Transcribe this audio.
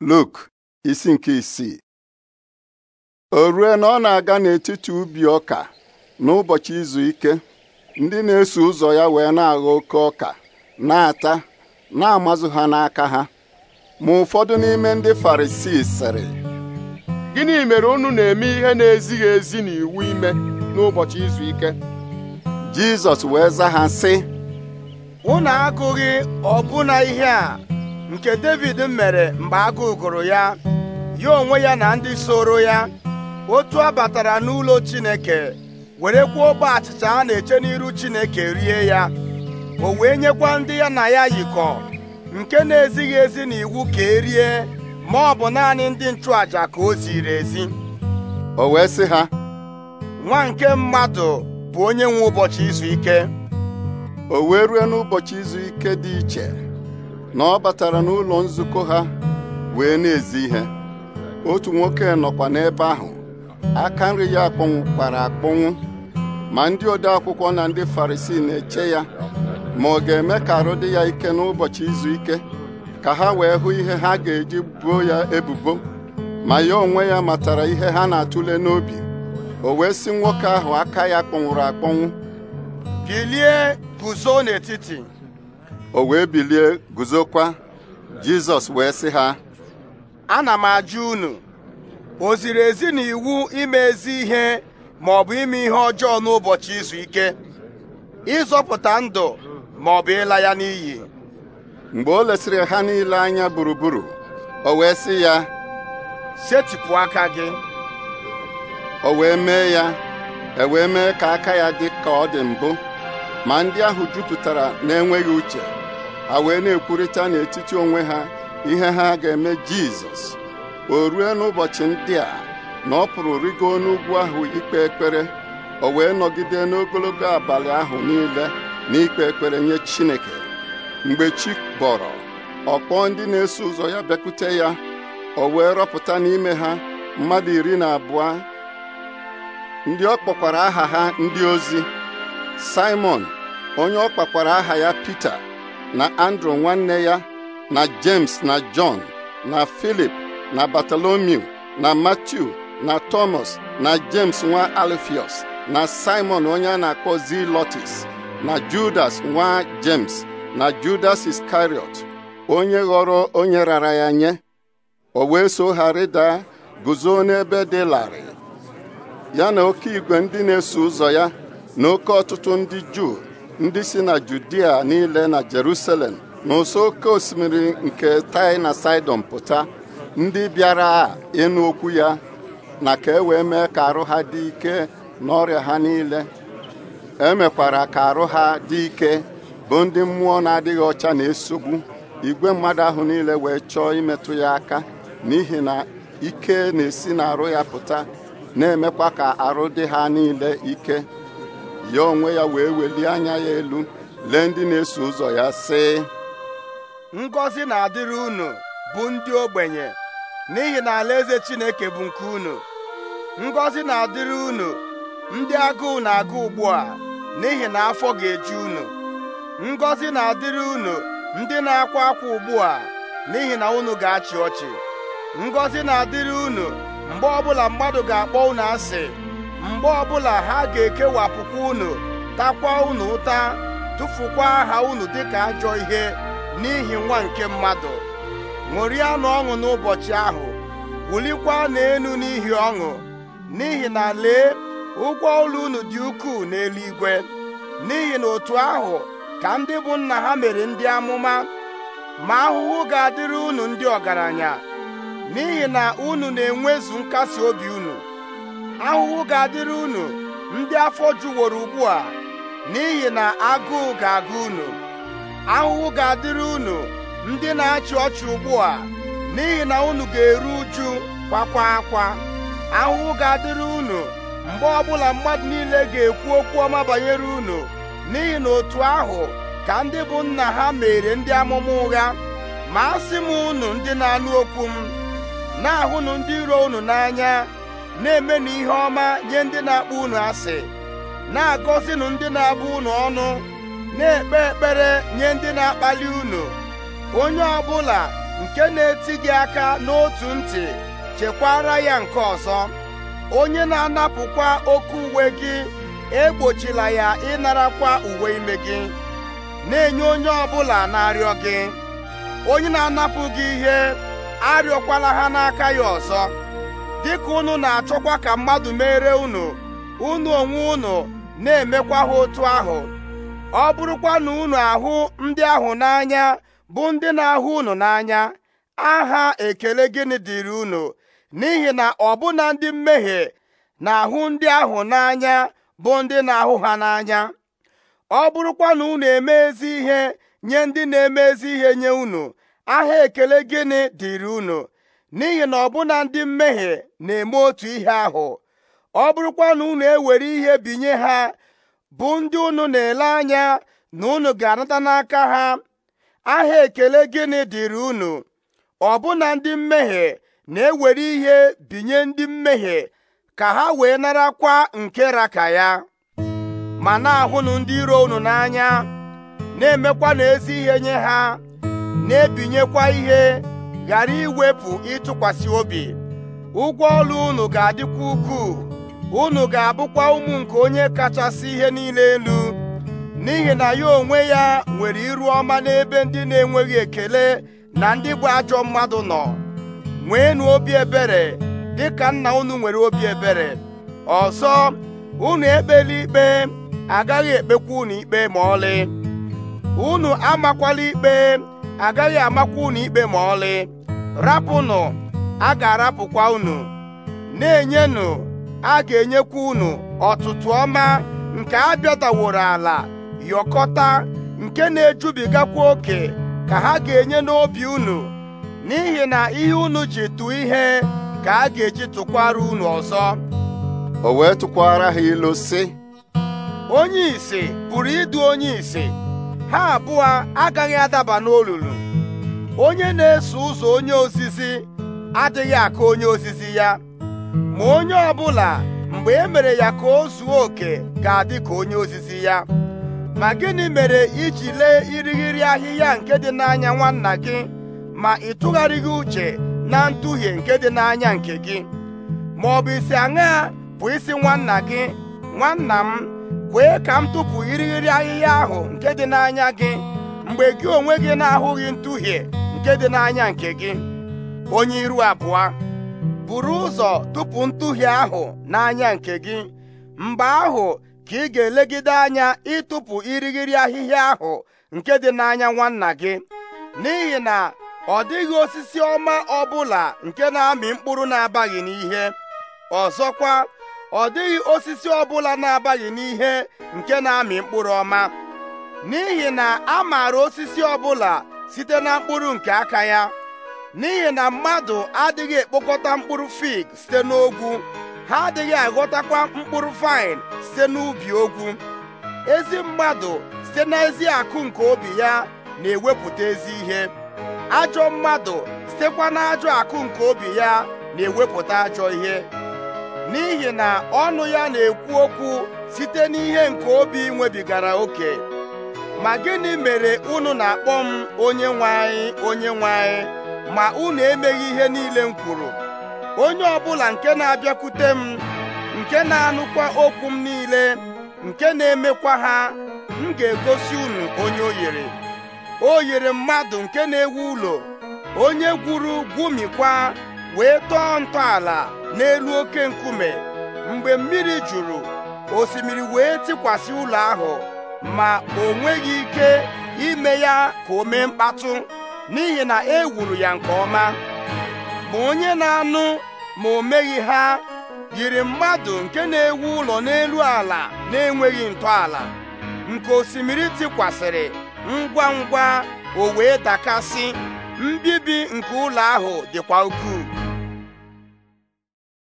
Luk isi nke isii o rue na ọ na-aga n'etiti ubi ọka n'ụbọchị izu ike ndị na-eso ụzọ ya wee na-agha oke ọka na-ata na-amazụ ha n'aka ha ma ụfọdụ n'ime ndị Farisii sịrị gịnị mere unu na-eme ihe na-ezighị ezi na iwu ime n'ụbọchị izu ike Jizọs wee zaa ha sị unu agụghị ọbụna ihe a nke David mere mgbe agụụ gụrụ ya ya onwe ya na ndị soro ya otu a batara n'ụlọ Chineke were kwuo ogbe achịcha a na-eche n'iru Chineke rie ya o wee nyekwa ndị ya na ya yikọ nke na-ezighị ezi na iwu ka erie ma ọ bụ naanị ndị nchụaja ka o ziri ezi o wee sị ha nwa nke mmadụ bụ onye nwe ụbọchị izu ike o wee rue n'ụbọchị izu ike dị iche na ọ batara n'ụlọ nzukọ ha wee na-ezi ihe otu nwoke nọkwa n'ebe ahụ aka nri ya kpara akpọnwụ ma ndị ode akwụkwọ na ndị farisii na-eche ya ma ọ ga-eme ka arụ dị ya ike n'ụbọchị izu ike ka ha wee hụ ihe ha ga-eji buo ya ebubo ma ya onwe ya matara ihe ha na-atụle n'obi o wee sị nwoke ahụ aka ya kpọnwụrụ akpọnwụ bilie guzo n'etiti o wee bilie guzokwa jizọs wee sị ha ana m ajụ unu o ziri ezi na iwu ime ezi ihe ma ọ bụ ime ihe ọjọọ n'ụbọchị izu ike ịzọpụta ndụ ma ọ bụ ịla ya n'iyi mgbe o lesịrị ha niile anya gburugburu o wee sị ya setịpụ aka gị o wee mee ya e wee mee ka aka ya dị ka ọ dị mbụ ma ndị ahụ jupụtara na-enweghị uche a wee na-ekwurịta n'etiti onwe ha ihe ha ga-eme jizọs o rue n'ụbọchị ndị a na ọ pụrụ rigo n'ugwu ahụ ikpe ekpere o wee nọgide n'ogologo abalị ahụ niile n'ikpe ekpere nye chineke mgbe chi bọrọ ọkpọ ndị na-eso ụzọ ya bịakwute ya o wee rọpụta n'ime ha mmadụ iri na abụọ ndị ọ kpọkwara aha ha ndị ozi Simon onye ọ kpakwara aha ya Pita na andrew nwanne ya na james na john na filip na bartolomew na matthew na thomas na james nwa alifius na simon onye a na-akpọ zilotis na judas nwa james na judas iskariot onye ghọrọ onye rara ya nye o wee so ha rịda guzo n'ebe dị larịị ya na oke igwe ndị na-eso ụzọ ya na oke ọtụtụ ndị juu ndị si na Judia niile na Jerusalem n'ụsọ oke osimiri nke tai na Sidon pụta ndị bịara ịnụ okwu ya na ka e wee mee ka arụ ha dị ike n'ọrịa ha niile emekwara ka arụ ha dị ike bụ ndị mmụọ na-adịghị ọcha na-esogbu igwe mmadụ ahụ niile wee chọọ imetụ ya aka n'ihi na ike na-esi na arụ ya pụta na-emekwa ka arụ dị ha niile ike ya onwe ya wee welie anya ya elu lee ndị na-eso ụzọ ya sị ngọzi na-adịrị unu bụ ndị ogbenye n'ihi na alaeze Chineke bụ nke unu ngọzi na-adịrị unu ndị agụụ na-agụ ugbu a n'ihi na afọ ga eji unu ngọzi na-adịrị unu ndị na-akwa akwa ugbu a n'ihi na unu ga-achị ọchị ngọzi na-adịrị unu mgbe ọbụla mmadụ ga-akpọ unu asị mgbe ọbụla ha ga-ekewapụkwa unu takwa unu ụta tụfukwa aha unu dịka ajọ ihe n'ihi nwa nke mmadụ ṅụrịanụ ọṅụ n'ụbọchị ahụ wulikwa n'elu n'ihi ọṅụ n'ihi na lee ụgwọ ụlọ unu dị ukwuu n'eluigwe n'ihi na otu ahụ ka ndị bụ nna ha mere ndị amụma ma ahụhụ ga-adịrị unu ndị ọgaranya n'ihi na unu na-enwezu nkasi obi unu ahụhụ ga-adịrị unu ndị afọ juworo ugbu a n'ihi na agụụ ga-agụ unu ahụhụ ga-adịrị unu ndị na-achị ọchị ugbu a n'ihi na unu ga-eru uju kwakwa akwa ahụhụ ga-adịrị unu mgbe ọbụla mmadụ niile ga-ekwu okwu ọma banyere unu n'ihi na otu ahụ ka ndị bụ nna ha mere ndị amụma ụgha ma asị m unu ndị na-anụ okwu m na-ahụnụ ndị iro unu n'anya na-emenụ ihe ọma nye ndị na-akpọ unu asị na-agọzinụ ndị na-abụ unu ọnụ na-ekpe ekpere nye ndị na-akpali unu onye ọbụla nke na-eti gị aka n'otu ntị chekwara ya nke ọzọ onye na-anapụkwa oke uwe gị egbochila ya ịnarakwa uwe ime gị na-enye onye ọbụla na-arịọ gị onye na-anapụ gị ihe arịọkwala ha n'aka ya ọzọ dịka unu na-achọkwa ka mmadụ mere unu unu onwe unu na-emekwa ha otu ahụ ọ bụrụkwa na unu ahụ ndị ahụ n'anya bụ ndị na-ahụ unu n'anya aha ekele gịnị dịrị unu n'ihi na ọbụna ndị mmehie na-ahụ ndị ahụ n'anya bụ ndị na-ahụ ha n'anya ọ bụrụkwa na unu eme ezi ihe nye ndị na-eme ezi ihe nye unu aha ekele gịnị dịrị unu n'ihi na ọbụna ndị mmehie na-eme otu ihe ahụ ọ bụrụkwa na unu ewere ihe binye ha bụ ndị unu na-ele anya na unu ga-anata n'aka ha aha ekele gịnị dịrị unu ọbụna ndị mmehie na-ewere ihe binye ndị mmehie ka ha wee narakwa nke raka ya ma na-ahụnụ ndị iro unu n'anya na-emekwa n'ezi ihe nye ha na-ebinyekwa ihe ghara iwepụ ịtụkwasị obi ụgwọ ọrụ unu ga-adịkwa ukwuu unu ga-abụkwa ụmụ nke onye kachasị ihe niile elu n'ihi na ya onwe ya nwere iru ọma n'ebe ndị na-enweghị ekele na ndị bụ ajọ mmadụ nọ nweenụ obi ebere dịka nna unu nwere obi ebere ọzọ unu ekpela ikpe agaghị ekpekwa unu ikpe ma ọlị unu amakwala ikpe agaghị amakwa unu ikpe ma ọlị rapụnụ a ga-arapụkwa unu na-enyenụ a ga-enyekwa unu ọtụtụ ọma nke a bịadaworo ala yọkọta nke na-ejubigakwa oke ka ha ga-enye n'obi unu n'ihi na ihe unu ji tụọ ihe ka a ga-eji tụkwara unu ọzọ o wee tụkwara ha ilu sị onye isi pụrụ ịdụ onye isi ha abụọ agaghị adaba n'olulu onye na-eso ụzọ onye ozizi adịghị akụ onye ozizi ya ma onye ọbụla mgbe e mere ya ka o zuo oke ga-adị ka onye ozizi ya ma gịnị mere iji lee irighiri ahịhịa nke dị n'anya nwanna gị ma ị tụgharịghị uche na nduhie nke dị n'anya nke gị ma ọ bụ isi aṅaa bụ isi nwanna gị nwanna m kwee ka m tụpụ irighiri ahịhịa ahụ nke dị n'anya gị mgbe gị onwe gị na-ahụghị nduhie nke dị n'anya nke gị onye iru abụọ buru ụzọ tupu ntụhie ahụ n'anya nke gị mgbe ahụ ka ị ga-elegide anya ịtụpụ irighiri ahịhịa ahụ nke dị n'anya nwanna gị n'ihi na ọ dịghị osisi ọma ọbụla nke na-amị mkpụrụ na-abaghị n'ihe ọzọkwa ọ dịghị osisi ọbụla na-abaghị n'ihe nke na-amị mkpụrụ ọma n'ihi na a maara osisi ọbụla site na mkpụrụ nke aka ya n'ihi na mmadụ adịghị ekpokọta mkpụrụ fig site n'ogwu ha adịghị aghọtakwa mkpụrụ vaịn site n'ubi ogwu ezi mmadụ site n'ezi akụ nke obi ya na-ewepụta ezi ihe ajọ mmadụ sitekwa n'ajọ akụ nke obi ya na-ewepụta ajọ ihe n'ihi na ọnụ ya na-ekwu okwu site n'ihe nke obi nwebigara oke ma gịnị mere unu na-akpọ m onye nwanyị, onye nwanyị' ma unu emeghị ihe niile m kwuru onye ọbụla nke na-abịakwute m nke na-anụkwa okwu m niile nke na-emekwa ha m ga-egosi unu onye o yiri o yere mmadụ nke na-ewu ụlọ onye gwuru gwumikwa wee tọọ ntọala n'elu oke nkume mgbe mmiri juru osimiri wee tikwasị ụlọ ahụ ma o nweghị ike ime ya ka o mee mkpatụ n'ihi na e wuru ya nke ọma ma onye na-anụ ma o meghị ha yiri mmadụ nke na-ewu ụlọ n'elu ala na-enweghị ntọala nke osimiri tikwasịrị ngwa ngwa o wee dakasị mbibi nke ụlọ ahụ dịkwa ukwuu